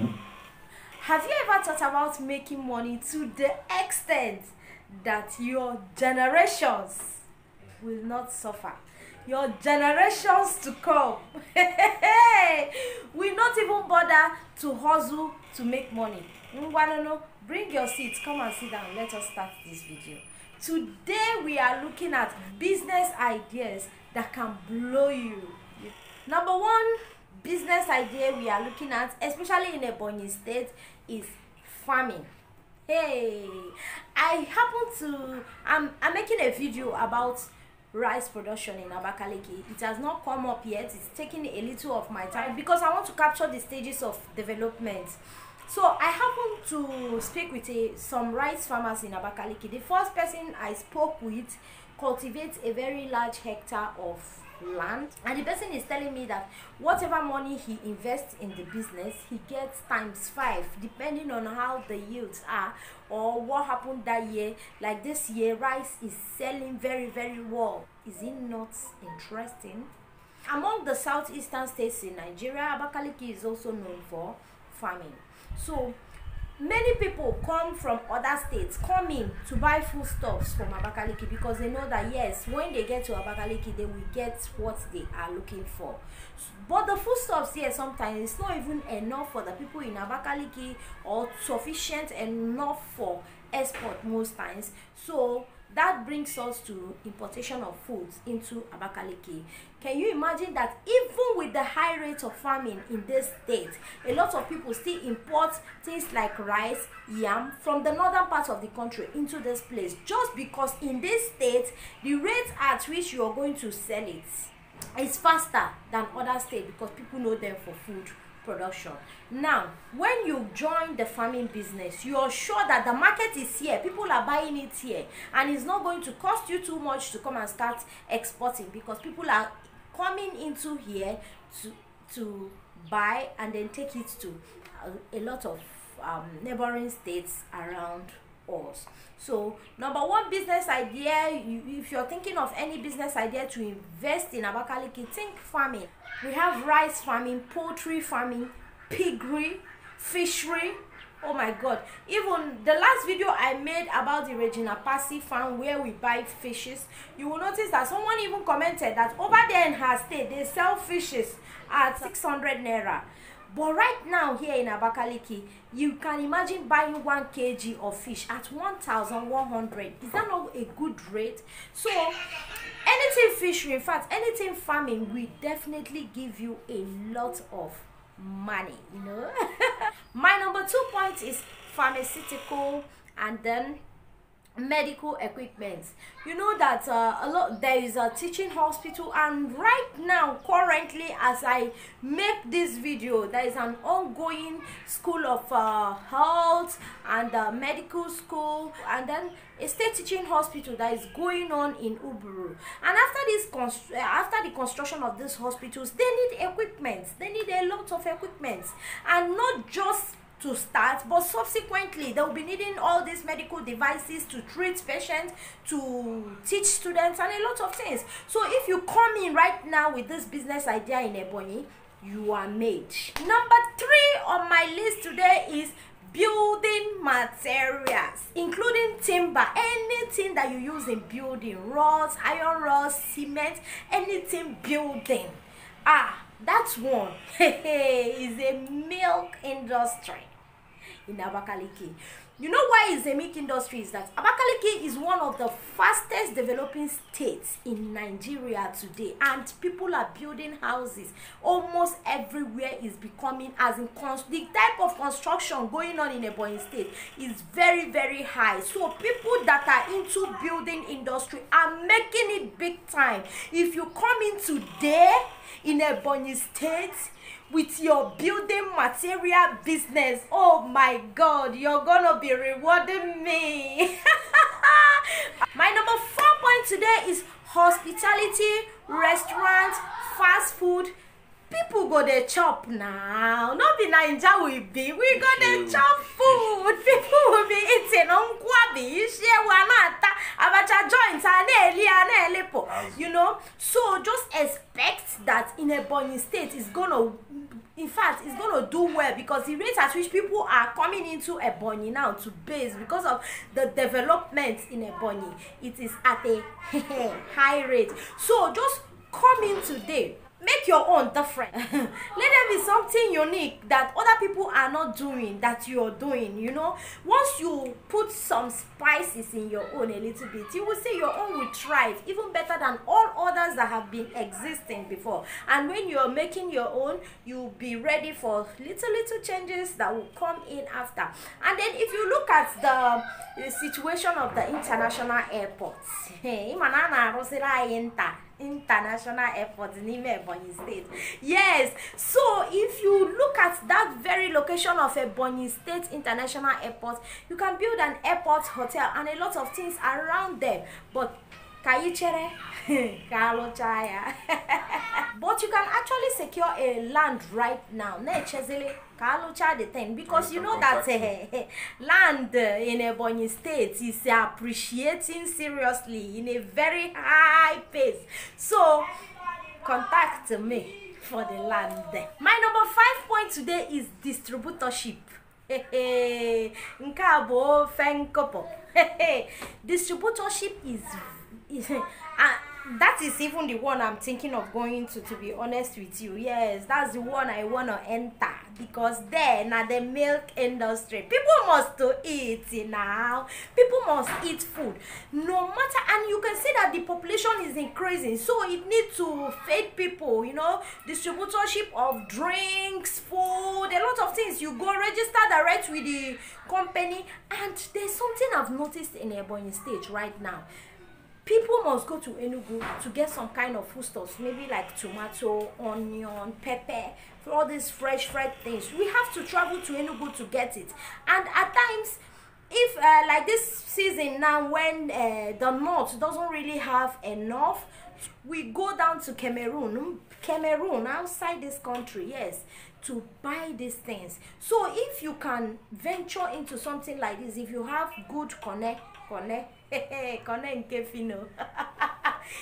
Have you ever thought about making money to the extent that your generations will not suffer? Your generations to come will not even bother to hustle to make money. know? bring your seat, come and sit down. Let us start this video. Today we are looking at business ideas that can blow you. Number one, business idea we are looking at especially in ebonyi state is farming hey i happen to i'm i'm making a video about rice production in abakaliki it has not come up yet it's taking a little of my time because i want to capture the stages of development so i happen to speak with a, eh, some rice farmers in abakaliki the first person i spoke with cultivates a very large hectare of land and the person is telling me that whatever money he invests in the business he gets times five depending on how the yields are or what happened that year like this year rice is selling very very well is it not interesting among the southeastern states in nigeria abakaliki is also known for farming so many people come from other states come in to buy foodstuffs from abakaliki because they know that yes when they get to abakaliki they will get what they are looking for but the foodstuffs here sometimes it's not even enough for the people in abakaliki or sufficient enough for export most times so that brings us to importation of foods into abakaliki can you imagine that even with the high rate of farming in this state a lot of people still import things like rice yam from the northern part of the country into this place just because in this state the rate at which you are going to sell it is faster than other states because people know them for food production now when you join the farming business you are sure that the market is here people are buying it here and it's not going to cost you too much to come and start exporting because people are coming into here to to buy and then take it to a, uh, a lot of um, neighboring states around us so number one business idea if you're thinking of any business idea to invest in abakaliki think farming we have rice farming poultry farming piggery fishery oh my god even the last video i made about the regina passy farm where we buy fishes you will notice that someone even commented that over there in her state they sell fishes at 600 naira but right now here in abakaliki you can imagine buying one kg of fish at one thousand one hundred is that not a good rate so anything fishery in fact anything farming will definitely give you a lot of money you know my number two point is pharmaceutical and then medical equipment you know that uh, a lot there is a teaching hospital and right now currently as i make this video there is an ongoing school of uh, health and uh, medical school and then a state teaching hospital that is going on in uburu and after this uh, after the construction of these hospitals they need equipment they need a lot of equipment and not just to start but subsequently they will be needing all these medical devices to treat patients to teach students and a lot of things so if you come in right now with this business idea in Ebony, you are made number three on my list today is building materials including timber anything that you use in building rods iron rods cement anything building ah that one is a milk industry in Abakaliki. You know why it's a milk industry is that Abakaliki is one of the fastest developing states in Nigeria today and people are building houses almost everywhere is becoming as in the type of construction going on in Ebonyi state is very very high so people that are into building industry are making it big time if you come in today in Ebonyi state with your building material business. Oh my God, you're gonna be rewarding me. my number four point today is hospitality, restaurant, fast food. People go there chop now. Not be Naija we be. We go there chop food. People will be eating nkwabi, ishewu, anata, abacha joint, aneli, anelepo. You know? So just expect that in Ebony state is gonna in fact it's gonna do well because the rate at which people are coming into Ebony now to base because of the development in Ebony, it is at a high rate so just come in today make your own different let there be something unique that other people are not doing that you are doing you know once you put some spices in your own a little bit you will see your own will thrive even better than all others that have been existing before and when you are making your own you'll be ready for little little changes that will come in after and then if you look at the, the situation of the international airports international airport in Ime Ebonyi State. Yes, so if you look at that very location of Ebonyi State International Airport, you can build an airport hotel and a lot of things around them. But Ka you chere? Kalocha ya. But you can actually secure a land right now. Nechezele Kalocha the thing because you know that uh, land in Ebonyi State is appreciating seriously in a very high pace. So contact me for the land. My number five point today is distributorship. Nke a bụ ofe Distributorship is uh, that is even the one i'm thinking of going to to be honest with you yes that's the one i wanna enter because there na the milk industry people must to eat now people must eat food no matter and you can see that the population is increasing so it need to feed people you know distributorship of drinks food a lot of things you go register direct with the company and there's something i've noticed in ebonyi state right now people must go to Enugu to get some kind of foodstuffs, maybe like tomato, onion, pepper, for all these fresh, fresh things. We have to travel to Enugu to get it. And at times, if uh, like this season now when uh, the north doesn't really have enough, we go down to Cameroon, mm, Cameroon outside this country, yes, to buy these things. So if you can venture into something like this, if you have good connect, connect, connect nkefino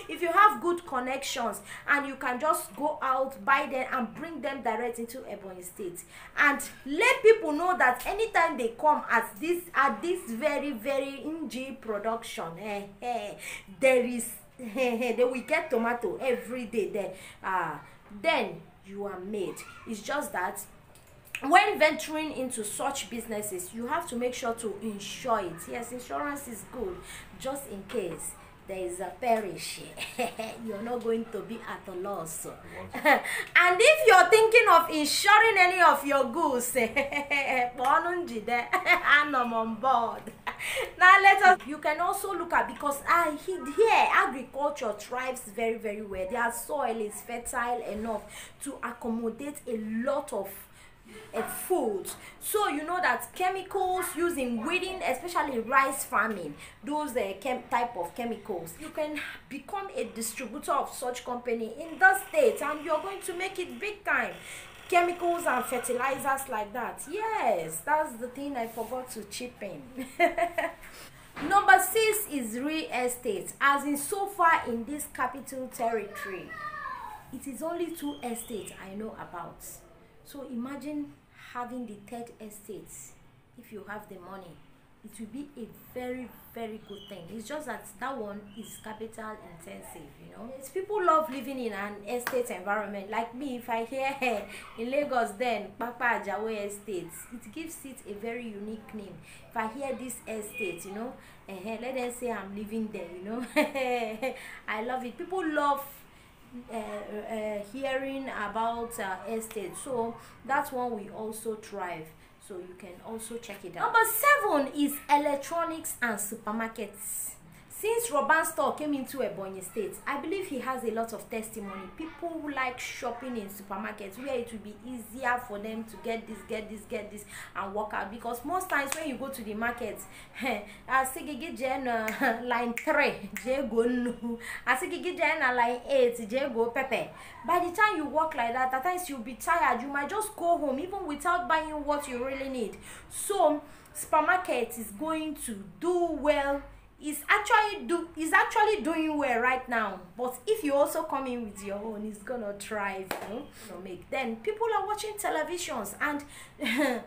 if you have good connections and you can just go out buy them and bring them direct into ebonyi state and let people know that anytime they come at this at this very very ng production eh, eh, there is eh, they will get tomato every day there ah uh, then you are made it's just that when venturing into such businesses you have to make sure to insure it yes insurance is good just in case there is a perish you're not going to be at a loss and if you're thinking of insuring any of your goods kpọọnụ njide anọ on board now let us you can also look at because I uh, here agriculture thrives very very well their soil is fertile enough to accommodate a lot of A food, so you know that chemicals using, weeding especially rice farming those uh, type of chemicals you can become a distributor of such company in the state and you're going to make it big time chemicals and fertilizers like that yes that's the thing i forgot to chip in number six is real estate as in so far in this capital territory it is only two estates i know about So imagine having the third estate if you have the money. It will be a very, very good thing. It's just that that one is capital intensive, you know. It's people love living in an estate environment. Like me, if I hear in Lagos, then Papa Ajawe Estate, it gives it a very unique name. If I hear this estate, you know, uh, let them say I'm living there, you know. I love it. People love Uh, uh, hearing about uh, estate so that's one we also thrive so you can also check it out number seven is electronics and supermarkets Since Roban store came into Ebonyi State, I believe he has a lot of testimony. People who like shopping in supermarkets where it will be easier for them to get this, get this, get this, and walk out. Because most times when you go to the market, asigigi jen uh, line three, jego nu, asigigi jen uh, line eight, jego pepe. By the time you walk like that, at times you'll be tired. You might just go home even without buying what you really need. So supermarket is going to do well. is actually do Is actually doing well right now but if you also come in with your own it's gonna thrive you know, make then people are watching televisions and the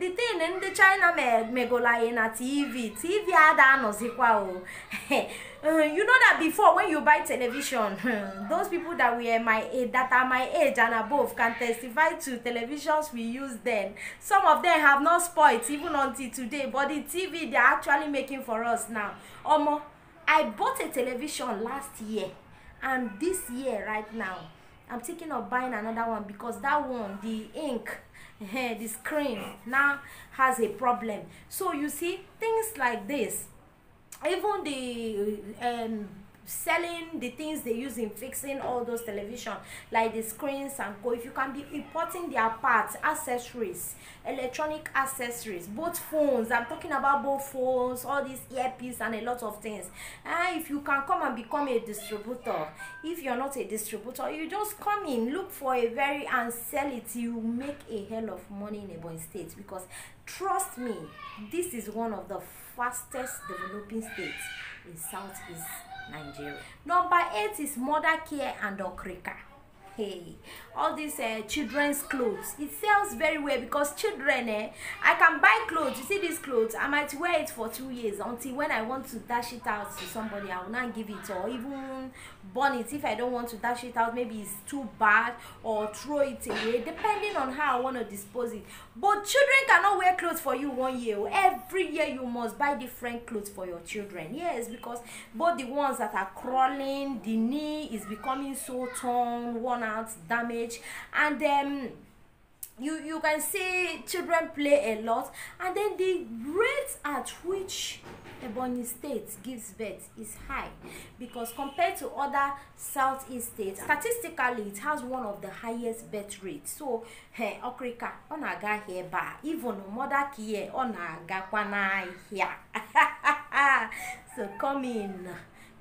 the thing the china in a tv tv ada anọzikwa o uh, you know that before when you buy television those people that were my age that are my age and above can testify to televisions we used then some of them have not spoiled even until today but the tv they're actually making for us now omo. I bought a television last year and this year right now I'm thinking of buying another one because that one the ink eh, the screen now has a problem so you see things like this even the um, selling the things they use in fixing all those television like the screens and co if you can be importing their parts accessories electronic accessories both phones i'm talking about both phones all these earpiece and a lot of things and ah, if you can come and become a distributor if you're not a distributor you just come in look for a very and sell it you make a hell of money in Ebonyi state because trust me this is one of the fastest developing states in southeast Nigeria. Number eight is mother care and okrika hey all these uh, children's clothes it sells very well because children eh i can buy clothes you see these clothes i might wear it for two years until when i want to dash it out to somebody i will not give it or even burn it if i don't want to dash it out maybe it's too bad or throw it away depending on how i want to dispose it but children cannot wear clothes for you one year every year you must buy different clothes for your children yes because both the ones that are crawling the knee is becoming so torn one burnout damage and then um, you you can see children play a lot and then the rate at which Ebony state gives birth is high because compared to other southeast states statistically it has one of the highest birth rates so eh, okrika ọ na-aga ahịa ebe a even mother care ọ na-agakwa so come in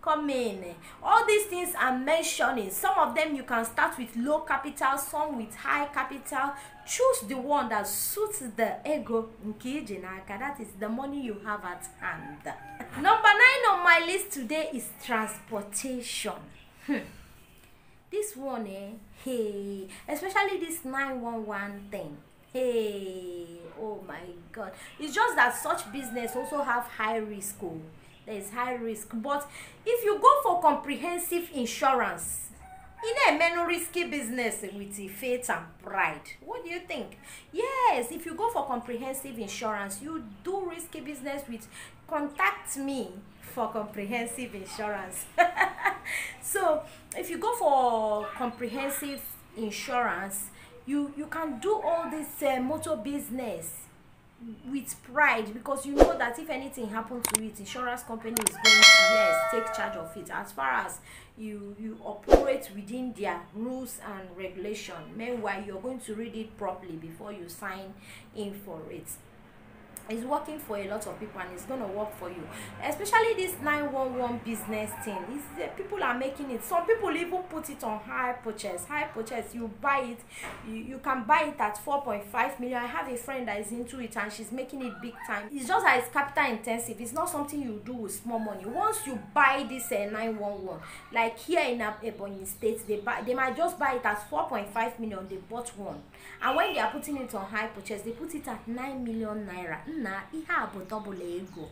coming all these things i'm mentioning some of them you can start with low capital some with high capital choose the one that suits the ego nke iji that is the money you have at hand number nine on my list today is transportation hmm. this one eh hey especially this 911 thing hey oh my god it's just that such business also have high risk oh There is high risk but if you go for comprehensive insurance in a menu risky business with faith and pride what do you think yes if you go for comprehensive insurance you do risky business with contact me for comprehensive insurance so if you go for comprehensive insurance you you can do all this uh, motor business with pride because you know that if anything happen to it insurance company is going to yes take charge of it as far as you you operate within their rules and regulation meanwhile you are going to read it properly before you sign in for it It's working for a lot of people and it's gonna work for you especially this 911 business thing is uh, people are making it some people even put it on high purchase high purchase you buy it you, you can buy it at 4.5 million i have a friend that is into it and she's making it big time it's just that it's capital intensive it's not something you do with small money once you buy this uh, eh, 911 like here in Ebony state they buy they might just buy it at 4.5 million they bought one and when they are putting it on high purchase they put it at 9 million naira nna ihe a bụ double ego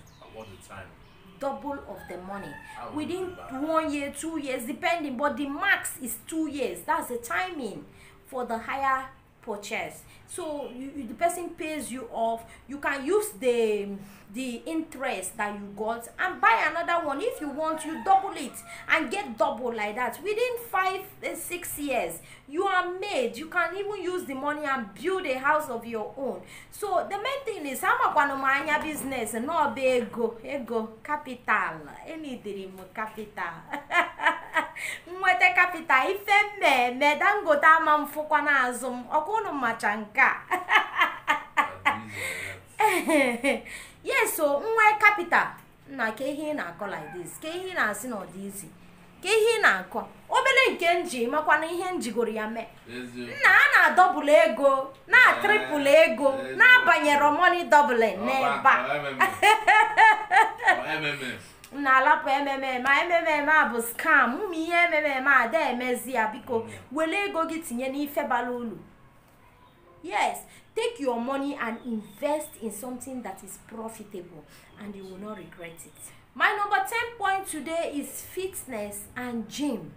double of the money within one year two years depending but the max is two years that's the timing for the higher purchase so you, the person pays you off you can use the the interest that you got and buy another one if you want you double it and get double like that within five and eh, six years you are made you can even use the money and build a house of your own so the main thing is i'm a anya business no ego ego capital any dream capital nweta capital ife me me ama m fụkwa n'azụ m ọkwa ka yes so nwa capital nna ka ihe ị na-akọ like this ka ihe ị na-asị na ọ izi ka ihe ị na-akọ obere nke nji makwa na ihe njigoro ya mee nna a na-adọbụlụ ego na-atrịpụlụ eh, ego na-abanyero money doubling n'ebe a na alapụ ememe a bụ scam ụmụ ihe ememe a da emezi ya biko mm. were ego gị tinye n'ife bara ulu. yes take your money and invest in something that is profitable and you will not regret it my number ten point today is fitness and gym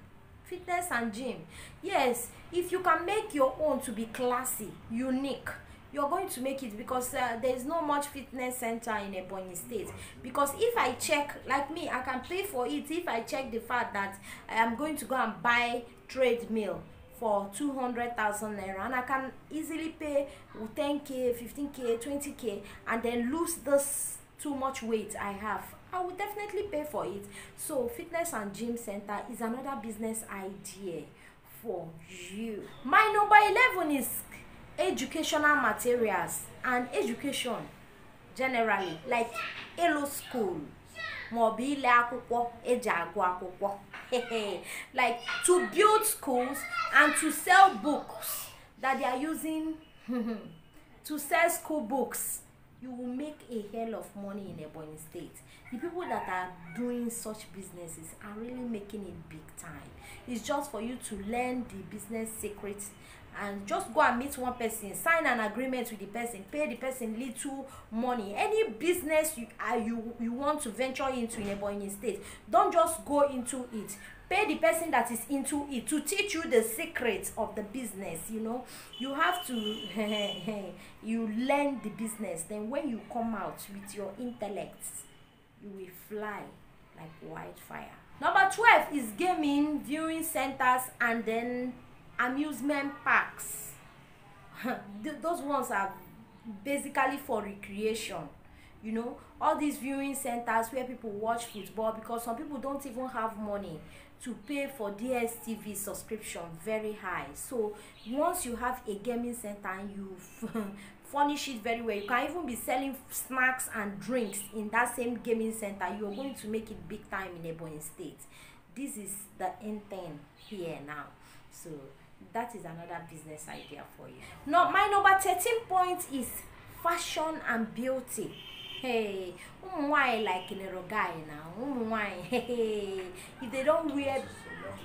fitness and gym yes if you can make your own to be classy unique you're going to make it because uh, there's no much fitness center in Ebonyi State. Because if I check, like me, I can pay for it if I check the fact that I am going to go and buy treadmill for 200,000 naira and I can easily pay 10k, 15k, 20k and then lose this too much weight I have. I will definitely pay for it. So fitness and gym center is another business idea for you. My number 11 is educational materials and education generally like Elo School maọbụ ile akwụkwọ eji agụ akwụkwọ like to build schools and to sell books that they are using to sell school books you will make a hell of money in Ebonyi State. The people that are doing such businesses are really making it big time. It's just for you to learn the business secrets and just go and meet one person sign an agreement with the person pay the person little money any business you are uh, you you want to venture into in ebonyi state don just go into it pay the person that is into it to teach you the secret of the business you know you have to you learn the business then when you come out with your intellect you will fly like wildfire number twelve is gaming viewing centers and then amusement parks those ones are basically for recreation you know all these viewing centers where people watch football because some people don't even have money to pay for dstv subscription very high so once you have a gaming center and you furnish it very well you can even be selling snacks and drinks in that same gaming center you're going to make it big time in Ebony state this is the end thing here now so that is another business idea for you now my number 13 point is fashion and beauty hey ụmụ nwanyị like nero guy na ụmụ nwanyị hey if they don't wear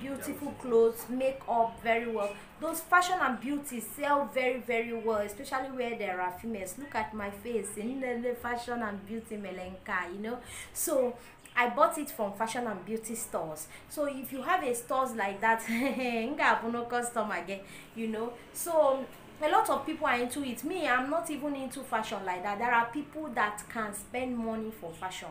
beautiful clothes makeup very well those fashion and beauty sell very very well especially where there are females look at my face in the fashion and beauty melenka you know so I bought it from fashion and beauty stores. So if you have a stores like that, no customer again, you know. So a lot of people are into it. Me, I'm not even into fashion like that. There are people that can spend money for fashion.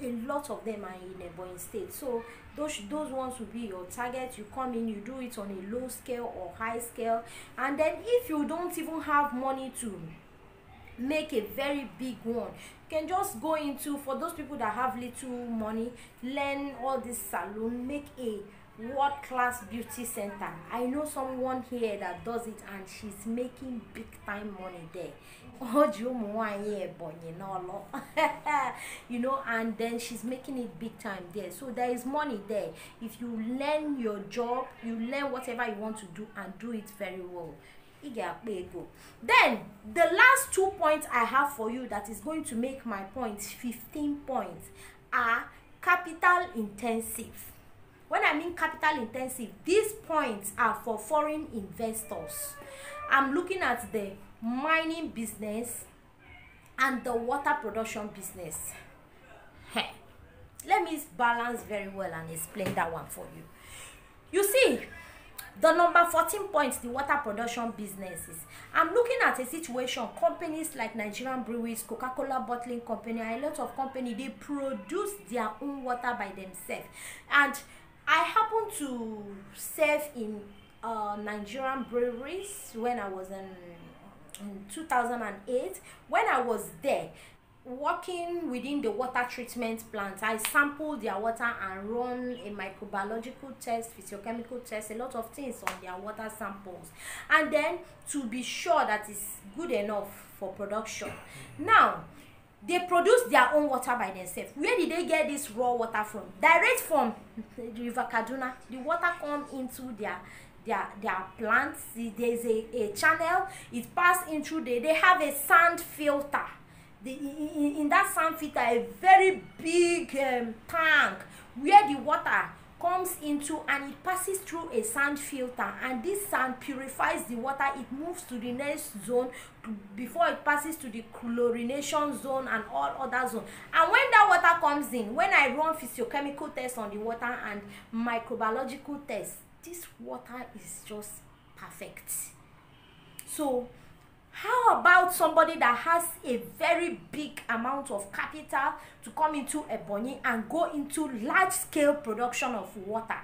A lot of them are in a born state. So those those ones will be your target. You come in, you do it on a low scale or high scale, and then if you don't even have money to make a very big one you can just go into for those people that have little money learn all this salon make a world class beauty center i know someone here that does it and she's making big time money there o ji ụmụ nwanyị ebonyi n'ọlụ you know and then she's making it big time there so there is money there if you learn your job you learn whatever you want to do and do it very well ị ga-akpa ego then the last two points i have for you that is going to make my point fifteen points are capital intensive when i mean capital intensive these points are for foreign investors i'm looking at the mining business and the water production business hey, let me balance very well and explain that one for you you see The number 14 point, the water production businesses. I'm looking at a situation, companies like Nigerian breweries, Coca-Cola bottling company, a lot of company, they produce their own water by themselves. And I happen to serve in uh, Nigerian breweries when I was in, in 2008. When I was there, working within the water treatment plant i sample their water and run a microbiological test physiochemical test a lot of things on their water samples and then to be sure that it's good enough for production now they produce their own water by themselves where did they get this raw water from direct from the river kaduna the water come into their their their plants there's a a channel it pass into the they have a sand filter the in, in that sand filter a very big um, tank where the water comes into and it passes through a sand filter and this sand purifies the water it moves to the next zone before it passes to the chlorination zone and all other zone. and when that water comes in when i run physiochemical tests on the water and microbiological tests this water is just perfect so how about somebody that has a very big amount of capital to come into ebonyi and go into large scale production of water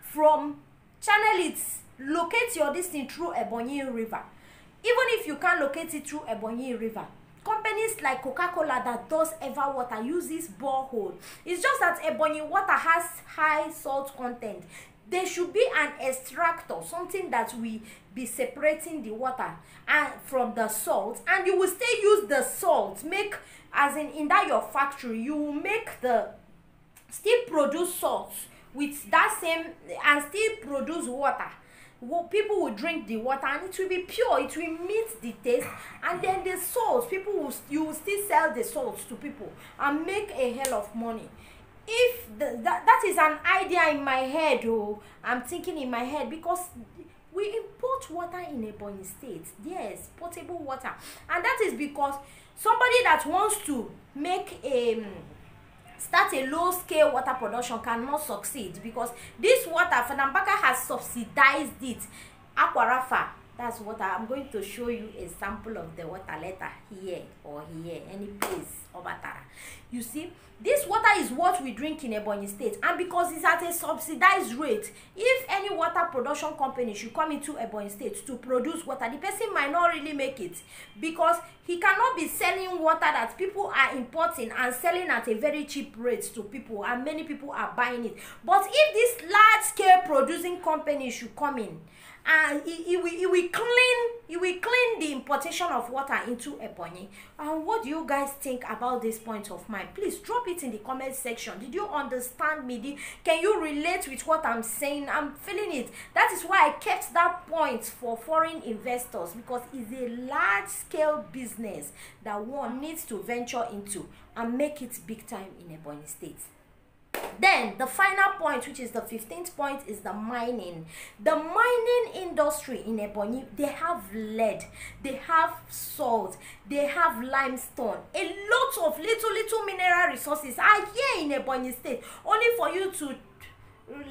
from channel it locate your distance through ebonyi river even if you can locate it through ebonyi river companies like coca-cola that does ever water uses borehole it's just that ebonyi water has high salt content there should be an extractor something that will be separating the water and uh, from the salt and you will still use the salt make as in in that your factory you will make the still produce salt with that same and still produce water well, people will drink the water and it will be pure it will meet the taste and then the salt people will you will still sell the salt to people and make a hell of money if the, that, that is an idea in my head oh i'm thinking in my head because we import water in ebonyi state yes potable water and that is because somebody that wants to make a um, start a low scale water production cannot succeed because this water fanambaka has subsidized it akwarafa that's what i'm going to show you a sample of the water later here or here any place Obatara. You see, this water is what we drink in Ebonyi State, and because it's at a subsidized rate, if any water production company should come into Ebonyi State to produce water, the person might not really make it because he cannot be selling water that people are importing and selling at a very cheap rate to people, and many people are buying it. But if this large scale producing company should come in, and it, it, will, it will clean it will clean the importation of water into Ebonyi. And what do you guys think about this point of mine? Please drop it in the comment section. Did you understand me? Did, can you relate with what I'm saying? I'm feeling it. That is why I kept that point for foreign investors because it's a large scale business that one needs to venture into and make it big time in Ebonyi State then the final point which is the 15th point is the mining the mining industry in ebonyi they have lead they have salt they have limestone a lot of little little mineral resources are here in ebonyi state only for you to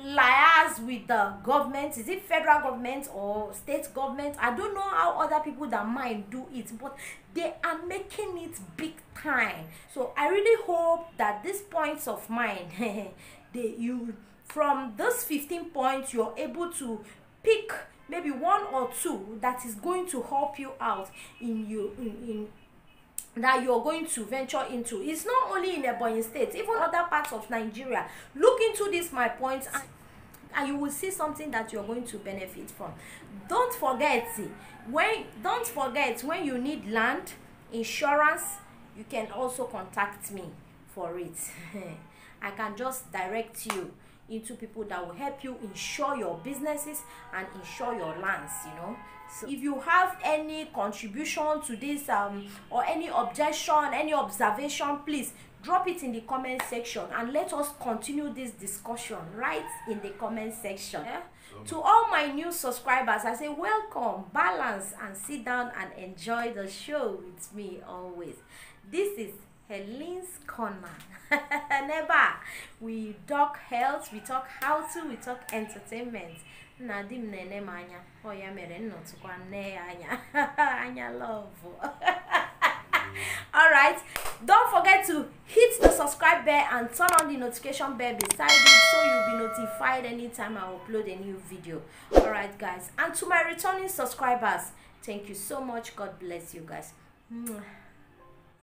liars with the government is it federal government or state government i don't know how other people that mine do it but they are making it big time so i really hope that these points of mine they you from those 15 points you're able to pick maybe one or two that is going to help you out in you in, in that you're going to venture into it's not only in Ebony state even other parts of nigeria look into this my points, and, and you will see something that you're going to benefit from don't forget when don't forget when you need land insurance you can also contact me for it i can just direct you into people that will help you insure your businesses and insure your lands you know so if you have any contribution to this um or any objection any observation please drop it in the comment section and let us continue this discussion right in the comment section yeah? to all my new subscribers i say welcome balance and sit down and enjoy the show with me always This is Helene's Corner. Never. We talk health, we talk how to, we talk entertainment. na di m na-ele m anya ọ ya mere nnọtụkwa nne ya anya anya love alright don't forget to hit the subscribe bell and turn on the notification bell beside it so you'll be notified anytime i upload a new video alright guys and to my returning subscribers thank you so much god bless you guys Mwah.